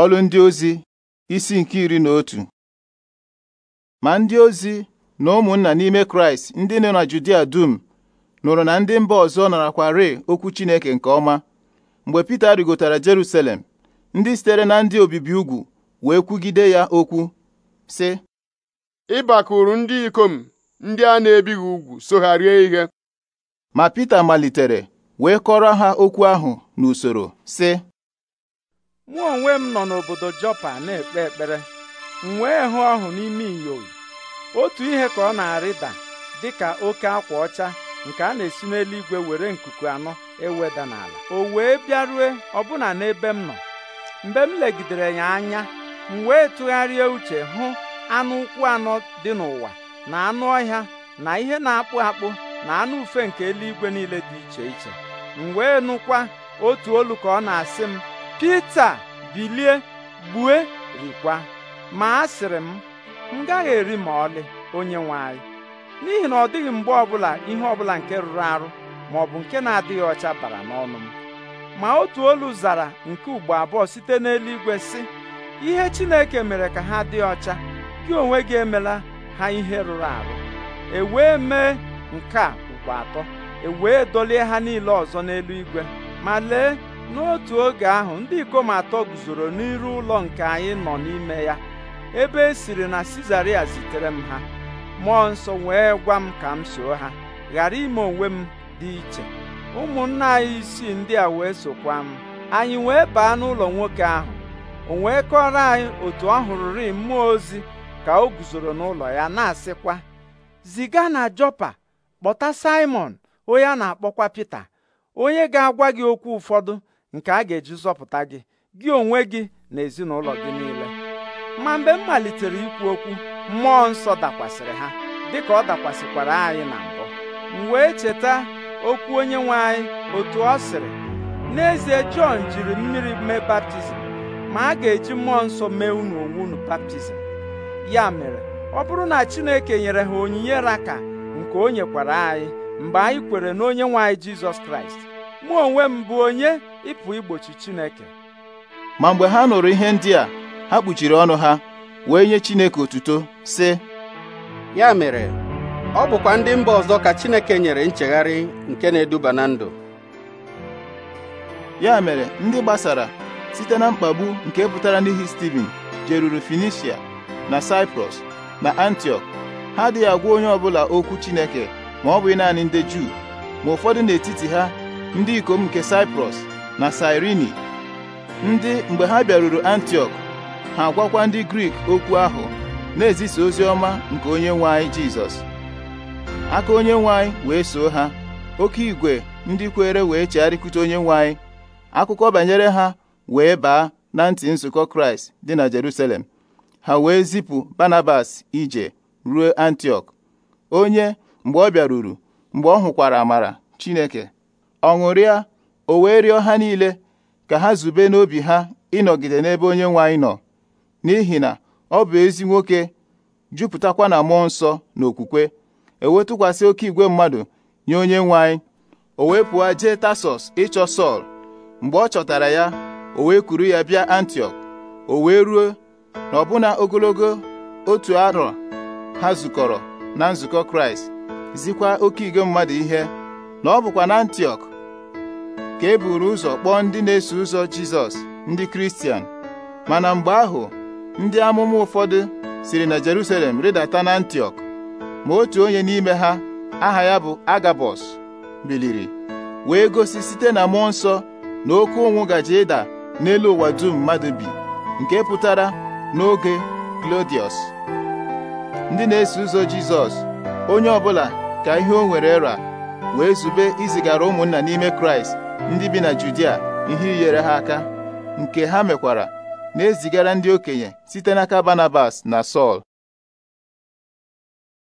Ọlụ ndị ozi isi nke iri na otu ma ndị ozi na ụmụnna n'ime Kraịst ndị nọ na Judia dum nụrụ na ndị mba ọzọ narakwarị okwu Chineke nke ọma mgbe Pita rigotara Jerusalem ndị sitere na ndị obibi ugwu wee kwugide ya okwu sị ịbakụrụ ndị ikom ndị a na-ebighị ugwu so ihe ma Pita malitere wee kọrọ ha okwu ahụ n'usoro sị mụ onwe m nọ n'obodo Jọpa na-ekpe ekpere m wee hụ ọhụ n'ime inyowu otu ihe ka ọ na-arịda dịka oke akwa ọcha nke a na-esi n'eluigwe were nkuku anọ eweda n'ala o wee bịarue ọbụna n'ebe m nọ mgbe m legidere ya anya m wee tụgharịa uche hụ anụ ụkwụ anọ dị n'ụwa na anụ ọhịa na ihe na-akpụ akpụ na anụ ufe nke eluigwe niile dị iche iche m wee nụkwa otu olu ka ọ na-asị m Pita bilie gbue rikwa ma asịrị m m gaghị eri ma ọlị onye nwe anyị n'ihi na ọ dịghị mgbe ọbụla ihe ọbụla nke rụrụ arụ ma ọ bụ nke na-adịghị ọcha bara n'ọnụ m ma otu olu zara nke ugbo abụọ site n'eluigwe sị ihe Chineke mere ka ha dị ọcha gị onwe gị emela ha ihe rụrụ arụ e wee mee nke a ugbo atọ e wee dolie ha niile ọzọ n'eluigwe ma lee n'otu oge ahụ ndị ikom atọ guzoro n'iru ụlọ nke anyị nọ n'ime ya ebe e siri na Sizaria zitere m ha mmụọ nsọ wee gwa m ka m soo ha ghara ime onwe m dị iche ụmụnna anyị isii ndị a wee sokwa m anyị wee baa n'ụlọ nwoke ahụ o wee kọrọ anyị otu ọ hụrụrị mmụọ ozi ka o guzoro n'ụlọ ya na-asịkwa ziga na Jọpa kpọta Simon onye a na-akpọkwa Pita onye ga-agwa gị okwu ụfọdụ nke a ga-eji zọpụta gị gị onwe gị na ezinụlọ gị niile ma mgbe m malitere ikwu okwu mmụọ nsọ dakwasịrị ha dịka ọ dakwasịkwara anyị na mbụ m wee cheta okwu onye nwe anyị otu ọ sịrị n'ezie Jọn jiri mmiri mee baptizim ma a ga-eji mmụọ nsọ mee unu onwe unu baptizim ya mere ọ bụrụ na Chineke nyere ha onyinye raka nke o nyekwara anyị mgbe anyị kwere na nwe anyị Jizọs Kraịst mụ onwe m bụ onye ịpụ igbochi Chineke ma mgbe ha nụrụ ihe ndị a ha kpuchiri ọnụ ha wee nye Chineke otuto sị ya mere ọ bụkwa ndị mba ọzọ ka Chineke nyere nchegharị nke na-eduba na ndụ ya mere ndị gbasara site na mkpagbu nke pụtara n'ihi Stephen, jeruru Finisia na Cyprus na antiok ha adịghị agwa onye ọbụla okwu Chineke ma ọ bụghị naanị ndị Juu ma ụfọdụ n'etiti ha ndị ikom nke Saịprọs. na Sairini ndị mgbe ha bịaruru antiok ha gwakwa ndị Grik okwu ahụ na-ezisa ozi ọma nke onye nwanyị anyị Jizọs aka onye nwanyị wee soo ha oke igwe ndị kwere wee chegharịkwute onye nwe akụkọ banyere ha wee baa na ntị nzukọ Kraịst dị na Jerusalem ha wee zipụ Barnabas ije ruo antiok onye mgbe ọ bịaruru mgbe ọ hụkwara amara Chineke ọ ṅụrịa o wee rịọ ha niile ka ha zube n'obi ha ịnọgide n'ebe onye nwe anyị nọ n'ihi na ọ bụ ezi nwoke jupụtakwa na mmụọ nsọ na okwukwe ewetụkwasị oke igwe mmadụ nye onye nwe anyị o wee pụọ jee Tasọs ịchọ Sọl mgbe ọ chọtara ya o wee kuru ya bịa antiok o wee ruo na ọbụna ogologo otu arọ ha zukọrọ na nzukọ Kraịst zikwa oke igwe mmadụ ihe na ọ bụkwa na antiok ka e buru ụzọ kpọọ ndị na-eso ụzọ Jizọs ndị Kristian mana mgbe ahụ ndị amụma ụfọdụ siri na Jerusalem rịdata na Antioch, ma otu onye n'ime ha aha ya bụ Agabọs biliri wee gosi site na mmụọ nsọ na oke ụnwụ gaje ịda n'elu ụwa dum mmadụ bi nke pụtara n'oge Klodiọs ndị na-eso ụzọ Jizọs onye ọbụla ka ihe o nwere ra wee zube izigara ụmụnna n'ime Kraịst ndị bi na Judia ihe inyere ha aka nke ha mekwara na-ezigara ndị okenye site n'aka Barnabas na Sọl